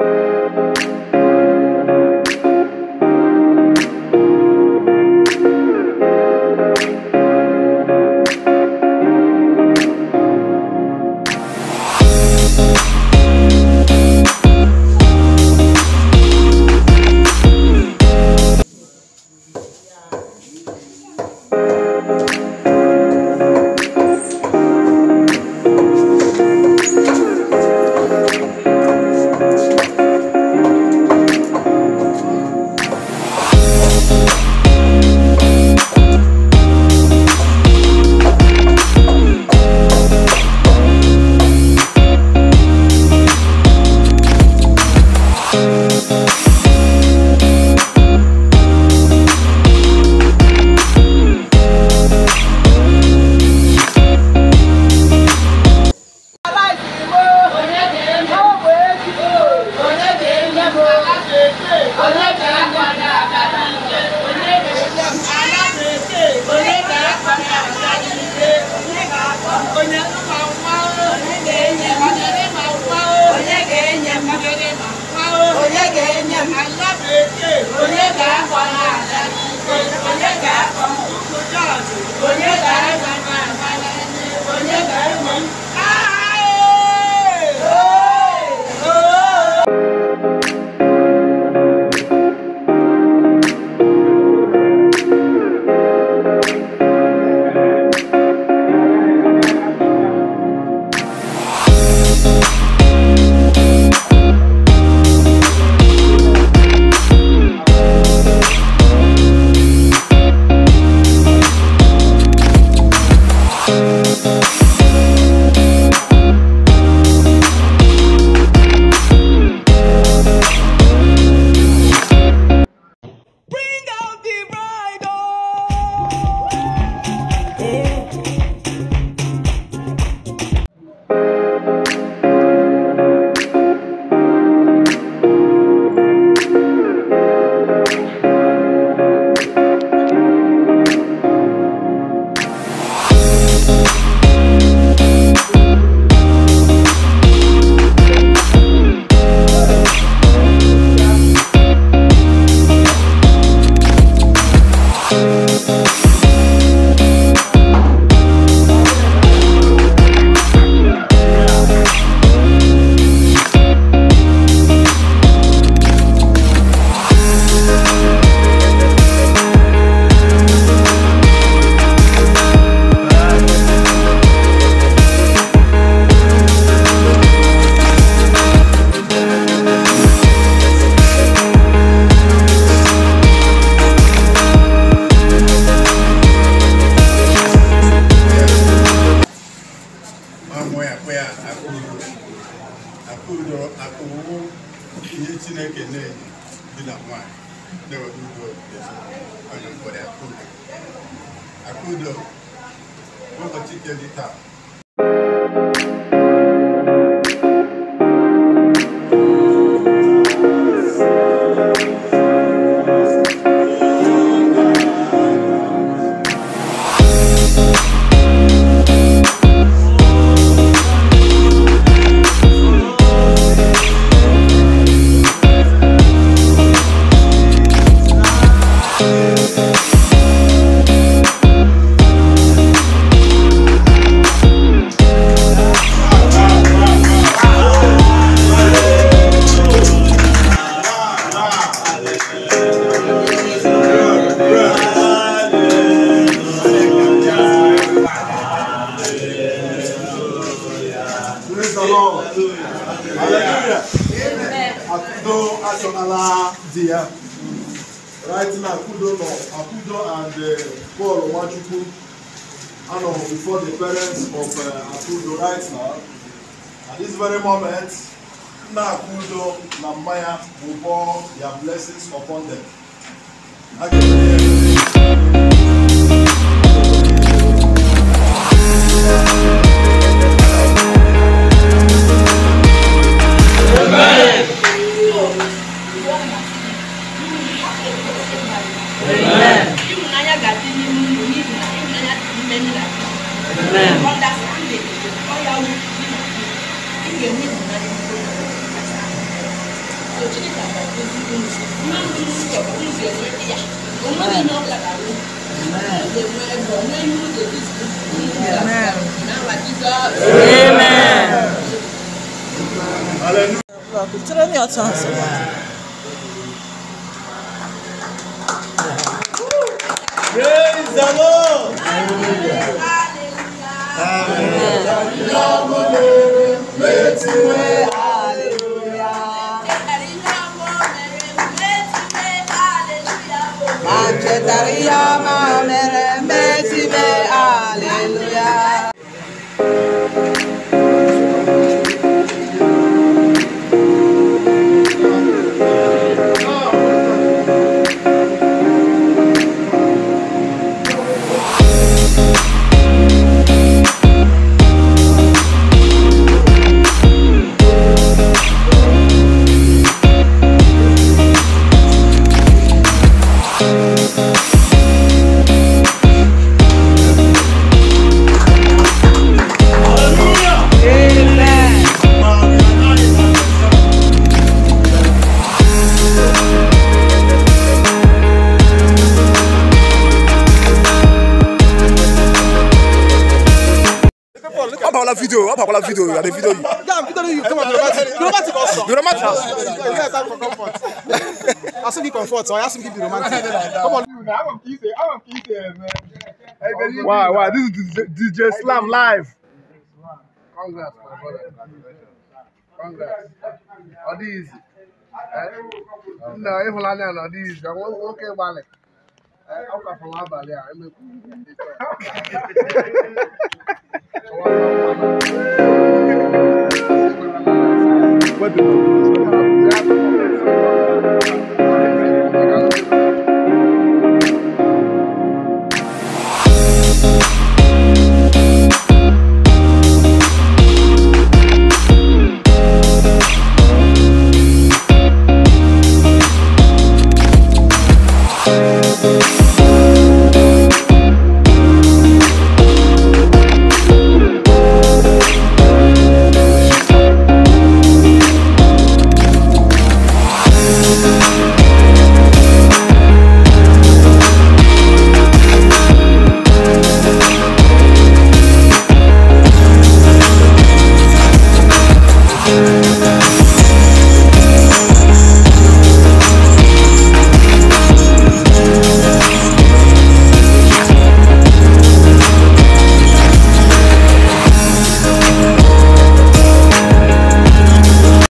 thank you ihe Chineke na-eyi di na nwanyị na-eweta udo onye mkpọrọ Akudo ụbọchị nke dị taa Akudo Ashonalah Dia. Right now, Akudo no, Akudo and uh, Paul Wachukwu are no, before the parents of uh, Akudo right now. At this very moment, Nna Akudo na Maya will pour their blessings upon them. Again, Amen. ga-agbazi unu mmadụ isi ọbụzi enwe ndị ya onweghị onye ọbụla ga-alụ na-enwe ebe onwe ihe ụzọ Kutere mi ọtọ nsọ. Praise the Lord. Hallelujah. Hallelujah. Hallelujah. Kriya la video on. I want kiss it. Eh? I want kiss it, eh, man. Wow, wow, this is DJ Slam live. Congrats, my brother. Congrats. Ọ dị izi. Nna ịhụlanya na ọ dị izi. Nwoke gbalị. Ọ kwafụrụ abalị What do you